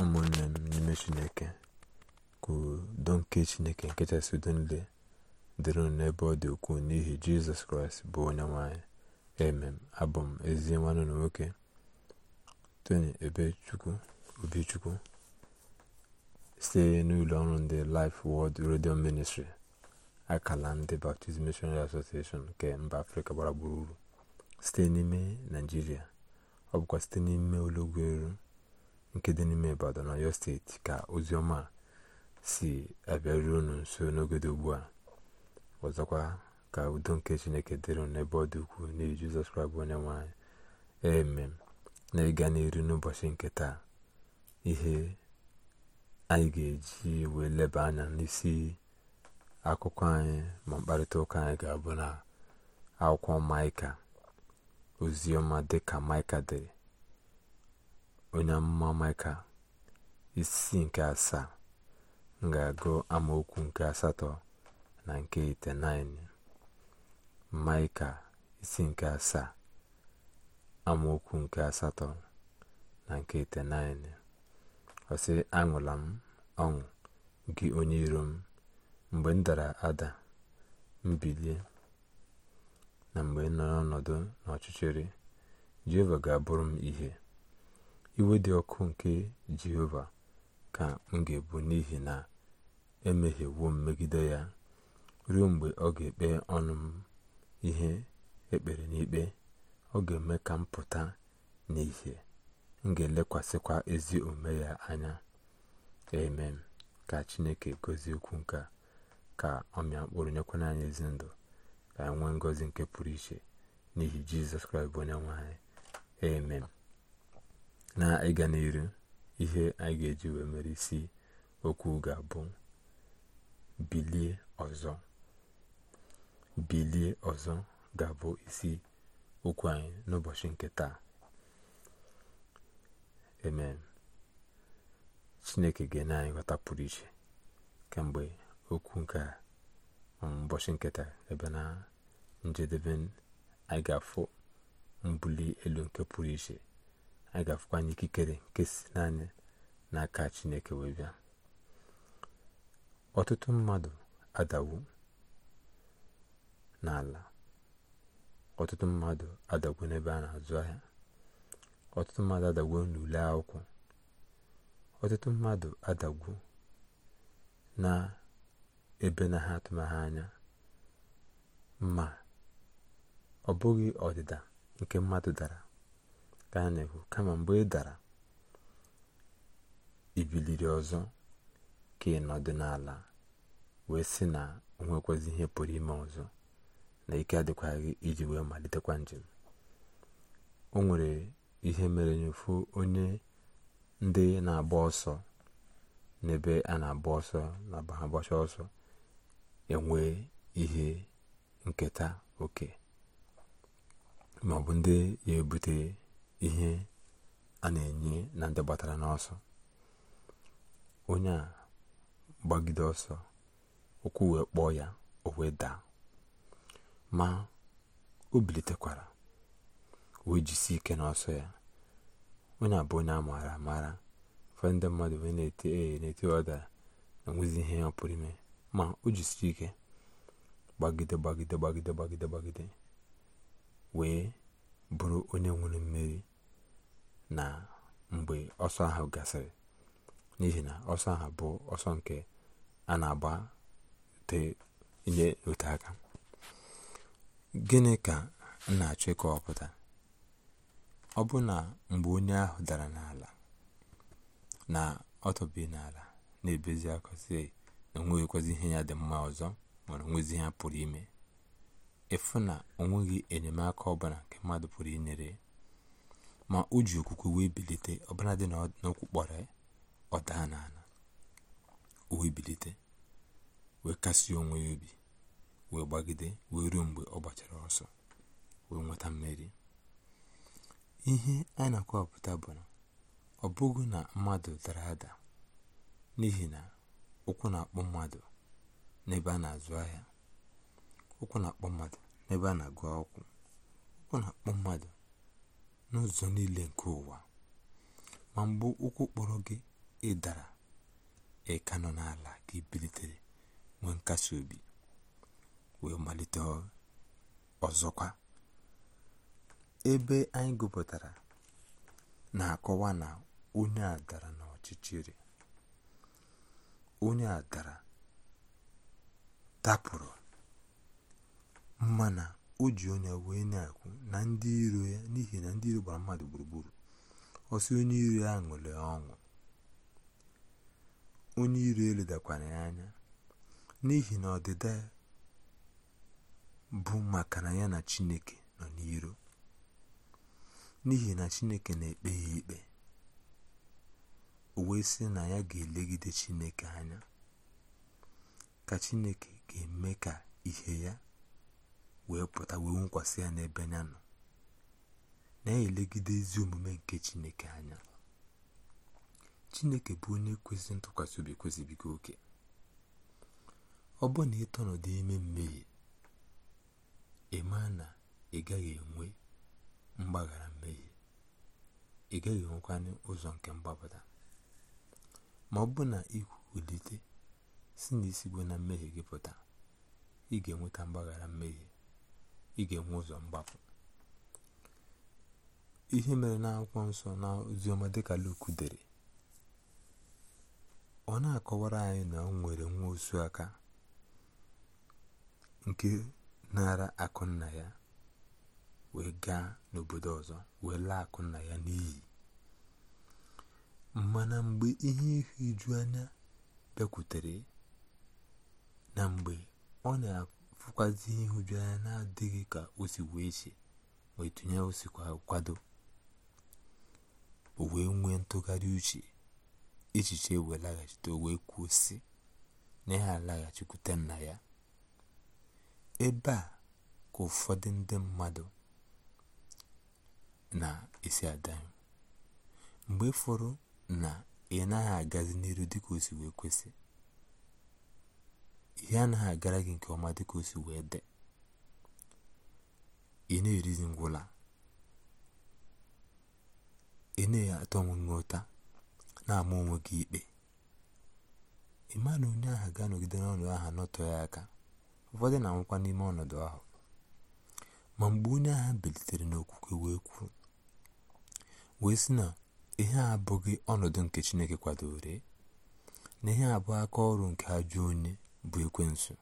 ụmụnne m n'ime chineke ka nke chineke nkechasị udo dịrị n'ebe ọ dị ukwuu n'ihi jizọs kraịst bụ onye nwanyị emem abụ m ezi nwanne na nwoke tony ebechukwu obichukwu site n'ụlọ ọrụ ndị life world radio ministry akala ndị baptist missionary association nke mba afrịka gbara gburugburu site n'ime naijiria ọ bụkwa site n'ime ụlọugwu eru nke dị n'ime ibadan ọyọ steeti ka ozi ọma si abịaruo unu nso n'oge ugbu a ọzọkwa ka udo nke chineke dịrị n'ebe ọ dị ukwuu n'ihi jizọs kraịst onye nwanyị eme na ịga n'iru n'ụbọchị nke taa ihe anyị ga-eji wee leba anya n'isi akụkọ anyị ma mkparịta ụka anyị ga-abụ na akwụkwọ maịka ozioma dịka maịka dịrị onye amụma maịka isi nke asaa m ga-agụ amaokwu nke asatọ na nke itenaịnị maịka isi nke asaa amaokwu nke asatọ na nke itenaịnị ọsị aṅụla m ọṅụ gị onye iro m mgbe m dara ada mbilie na mgbe nọ n'ọnọdụ n'ọchịchịrị jehova ga-abụrụ m ihe iwe dị ọkụ nke jehova ka m ga-ebu n'ihi na emehiewo m megide ya ruo mgbe ọ ga-ekpe ọnụ ihe ekpere n'ikpe ọ ga-eme ka m pụta n'ihe m ga-elekwasịkwa ezi omume ya anya amen ka chineke gozie okwu nke ka ọ mịa mkpụrụ nyekwana anyị ezi ndụ ka enwe nwee ngọzi nke pụrụ iche n'ihi jizọs kraịst bụ onye nwaanyị amen na ịga n'iru ihe anyị ga-eji wee mere isi okwu ga-abụ bilie ọzọ bilie ọzọ ga-abụ isi okwu anyị n'ụbọchị nke taa amen chineke ga-enye anyị ghọta pụrụ iche kemgbe okwu nke um, ụbọchị nketa ebe na njedebe anyị ga-afụ mbuli elu nke pụrụ iche anyị ga-afụkwa anyị ikikere nke si naanị n'aka chineke wee bịa ọtụtụ mmadụ adawu n'ala ọtụtụ mmadụ adagwo n'ebe a na-azụ ahịa ọtụtụ mmadụ adagwo n'ule akwụkwọ ọtụtụ mmadụ adagwo na ebe na ha atụmaghị anya ma ọ bụghị ọdịda nke mmadụ dara ka kama mgbe ị dara ibiliri ọzọ ka ị nọdụ n'ala wee sị na o ihe pụrụ ime ọzọ na ike adịkwaghị iji wee malitekwa njem o nwere ihe mere nyefu onye ndị na-agba ọsọ n'ebe a na-agba ọsọ na agbacha ọsọ enwe ihe nketa oke ma ọ bụ ndị ya ebute ihe a na-enye na ndị gbatara n'ọsọ onye a gbagide ọsọ ụkwụ wee kpọọ ya o wee daa ma o bilitekwara wee jisi ike n'ọsọ ya onye a bụ onye a maara amaara fe ndị mmadụ wee na-ete ee na-ete na enwezi ihe ọpụrụ ime ma o jisiri ike gbagide gbagide gbagide gbagide gbagide wee bụrụ onye nwere mmeri na mgbe ọsọ ahụ gasịrị n'ihi na ọsọ ahụ bụ ọsọ nke a na-agbate inye ote aka gịnị ka m na-achọ ịkọwapụta ọ bụ na mgbe onye ahụ dara n'ala na ọtọbi n'ala na-ebezi akọzi na onweghịkwazi ihe ya dị mma ọzọ mana onwezi ha pụrụ ime ịfụ na onweghị enyemaka ọbụla nke mmadụ pụrụ inyere ma o ji okwukwe wee bilite ọbara dị n'okwu kpọrọ ya ọ n'ala o wee bilite wee kasị onwe ya obi wee gbagide wee ruo mgbe ọ gbachara ọsọ wee nweta mmeri ihe anyị na-akọwapụta bụ na ọ bụghị na mmadụ dara ada n'ihi na ụkwụ na-akpọ mmadụ n'ebe a na-azụ ahịa ụkwụ na-akpọ mmadụ n'ebe a na-agụ akwụkwọ ụkwụ na-akpọ mmadụ n'ụzọ niile nke ụwa ma mgbe ụkwụ kpọrọ gị ịdara dara nọ n'ala ka ibilitere bilitere nwee nkasi obi wee malite ọzọkwa ebe anyị gụpụtara na-akọwa na onye a dara n'ọchịchịrị onye a dara dapụrụ na. o ji onye wee na-akwụ na ndị iro ya n'ihi na ndị iro gbara mmadụ gburugburu ọsị onye iro ya ṅụrị ọṅụ onye iro eledakwara ya anya n'ihi na ọdịda bụ maka na ya na chineke nọ n'iro n'ihi na chineke na-ekpe ya ikpe o wee sị na ya ga-elegide chineke anya ka chineke ga-eme ka ihe ya wee pụta wee nkwasị ya n'ebe anya nọ na-elegide ezi omume nke chineke anya chineke bụ onye kwesịrị ntụkwasị obi kwesịbiga oke ọ bụ na ịtọ ime mmehie ịma na ị gaghị enwe mgbaghara mmehie ị gaghị enwekwanye ụzọ nke mgbapụta ma ọ bụ na ikwulite si n'isi bụ na mmehie gị pụta ị ga-enweta mgbaghara mmehie ị ga-enwe ụzọ mgbapụ ihe mere na-akwụkwọ nsọ na oziọma dịka lokudere dere ọ na-akọwara anyị na ọ nwere nwa osu aka nke nara akụ nna ya wee gaa n'obodo ọzọ wee laa akụ nna ya n'iyi mana mgbe ihe ihu anya bịakwutere na mgbe ọ na-akụ na-afụkwazi ihe anya na-adịghị ka o si wee si wee tụnye o kwado o nwee ntụgharị uche echiche e wee laghachite o wee kwuo sị na ya alaghachikwute nna ya ebe a ka ụfọdụ ndị mmadụ na-esi adanyụ mgbe fọrọ na ị naghị agazi n'iru dịka o si wee kwesị ihe anaghị agara gị nke ọma dịka o si wee ị na ngwụla ị na-atọ ụta na-ama onwe gị ikpe ị ma na onye agha ga-anọgide n'ọnọdụ aha nọtọ ya aka ụfọdụ na-anwụkwa n'ime ọnọdụ ahụ ma mgbe onye agha bilitere n'okwukwe wee kwuo wee sị na ihe a abụghị ọnọdụ nke Chineke kwadoro na ihe abụọ aka ọrụ nke ajọ onye bụ ekwensu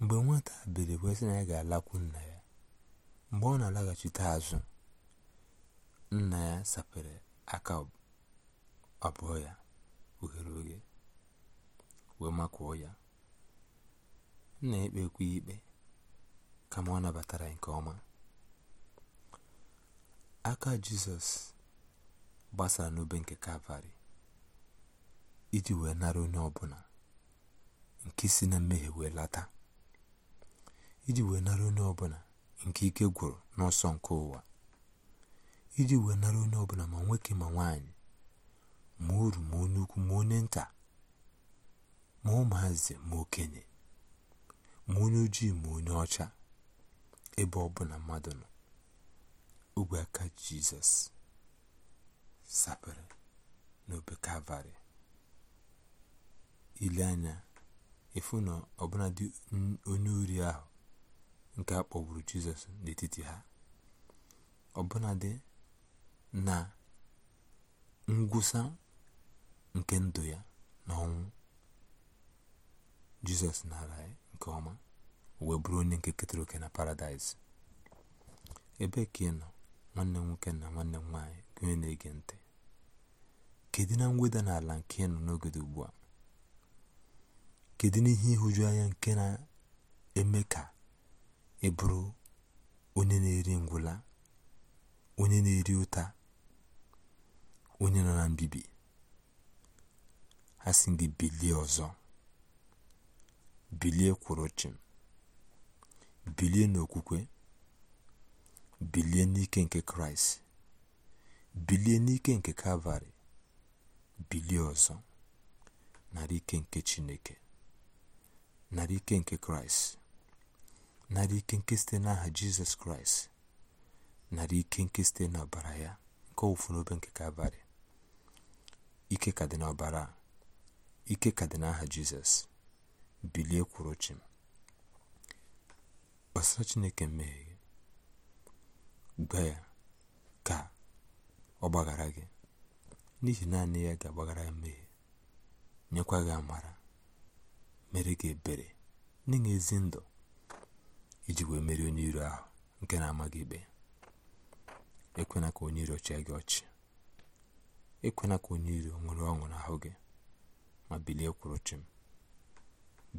mgbe nwata bere kwesị na ya ga-alakwu nna ya mgbe ọ na-alaghachite azụ nna ya sapere aka abụọ ya oghere oghe wee makụọ ya nna ekpe ekwe ikpe kama ọ nabatara nke ọma aka jizọs gbasara n'obe nke kalvarị iji wee nara onye ọbụla nke si na mmehie wee lata iji wee nara onye ọbụla nke ike gwụrụ n'ọsọ nke ụwa iji wee nara onye ọbụla ma nwoke ma nwaanyị. ma uru ma onye ukwu ma onye nta ma ụmụazị ma okenye ma onye ojii ma onye ọcha ebe ọbụla mmadụ nọ ogwe aka jizọs sapere n'obe kalvarị ile efu na onye uri ahụ nke a kpọgburu jizọs n'etiti ha ọbụnadị na ngwụsa nke ndụ ya na ọnwụ jizọs nara nke ọma wee bụrụ onye nke ketara oke na paradaịs ebe ka ị nọ nwanne nwoke na nwanne m nwaanyị gụnye na-ege ntị kedu na mweda n'ala nke ị nọ n'oge ugbu a kedu n'ihe ịhụju anya nke na-eme ka ị bụrụ onye na-eri ngwụla onye na-eri ụta onye nọ na mbibi ha si gị bilie ọzọ bilie kwụrụ chịm bilie n'okwukwe bilie n'ike nke kraịst bilie n'ike nke kalvarị bilie ọzọ nara ike nke chineke nari ike nke kraịst narị ike nke site n'aha jizọs kraịst nara ike nke site n'ọbara ya nke ọwụfụ n'obe nke kalvarị ike ka dị n'ọbara ike ka dị n'aha jizọs bilie kwuru chim gbasara chineke mmehie gba ya ka ọ gbaghara gị n'ihi naanị ya ga-agbaghara ya mmehie nyekwa gị amara mere gị ebere nye gị ezi ndụ iji wee merie onye iro ahụ nke na-amaghị ikpe ekwena ka onye iro chịa gị ọchị ekwena ka onye iro nwere ọṅụ n'ahụ gị ma bilie kwụrụ chim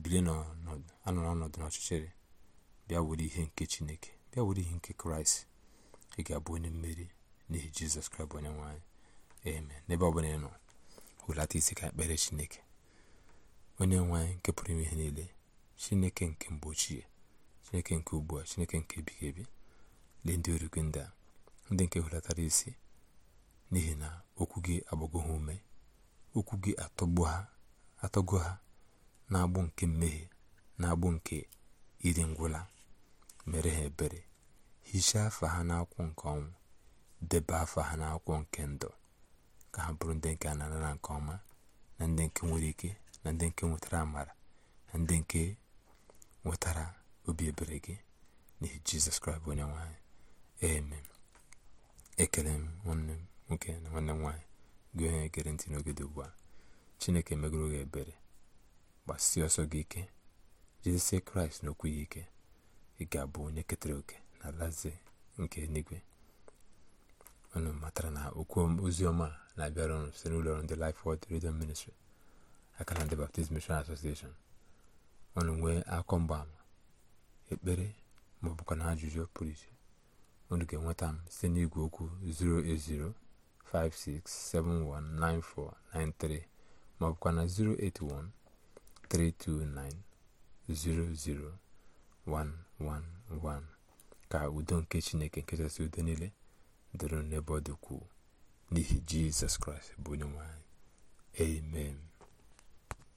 bilie anọ n'ọnọdụ n'ọchịchịrị bịa were ihe nke chineke bịa were ihe nke kraịst ị ga-abụ onye mmeri n'ihi jizọs kraịst onye nwanyị eme n'ebe ọ bụla ị nọ hụlata isi ka ekpere chineke onye nwe anyị nke pụrụ ime ihe niile chineke nke mgbe ochie chineke nke ugbu a chineke nke ebighị ebi dị ndị orikwe ndị a ndị nke hụlatara isi n'ihi na okwu gị agbago ha ume okwu gị atọgo ha na-agbụ nke mmehie na-agbụ nke iri ngwụla mere ha ebere hichaa afa ha n'akwụkwọ nke ọnwụ debe afa ha n'akwụkwọ nke ndụ ka ha bụrụ ndị nke a na nke ọma na ndị nke nwere ike na ndị nke nwetara amara na ndị nke nwetara obi ebere gị n'ihi jizọs kraịst onye nwanyị eme ekele m nwanne m nwoke na nwanne m gị onye gere ntị n'oge dị ugbu a chineke megoro gị ebere gbasie ọsọ gị ike jizọs kraịst n'okwu ya ike ị ga-abụ onye ketara oke na alaze nke eluigwe unu matara na okwu ozi ọma na-abịara unu site n'ụlọ ọrụ ndị lif Word Radio Ministry Akalata Baptist Mission Association ọnụ nwee akọ mgbaama ekpere ma na ajụjụ pụrụ iche unu ga-enweta m site n'igwe okwu 08056719493 56719493 ọ 081 na 08132900111 ka udo nke Chineke nkechasị udo niile dịrị n'ebe ọ dịkwuo n'ihi Jizọs Kraịst bụ onye nwanyị. amen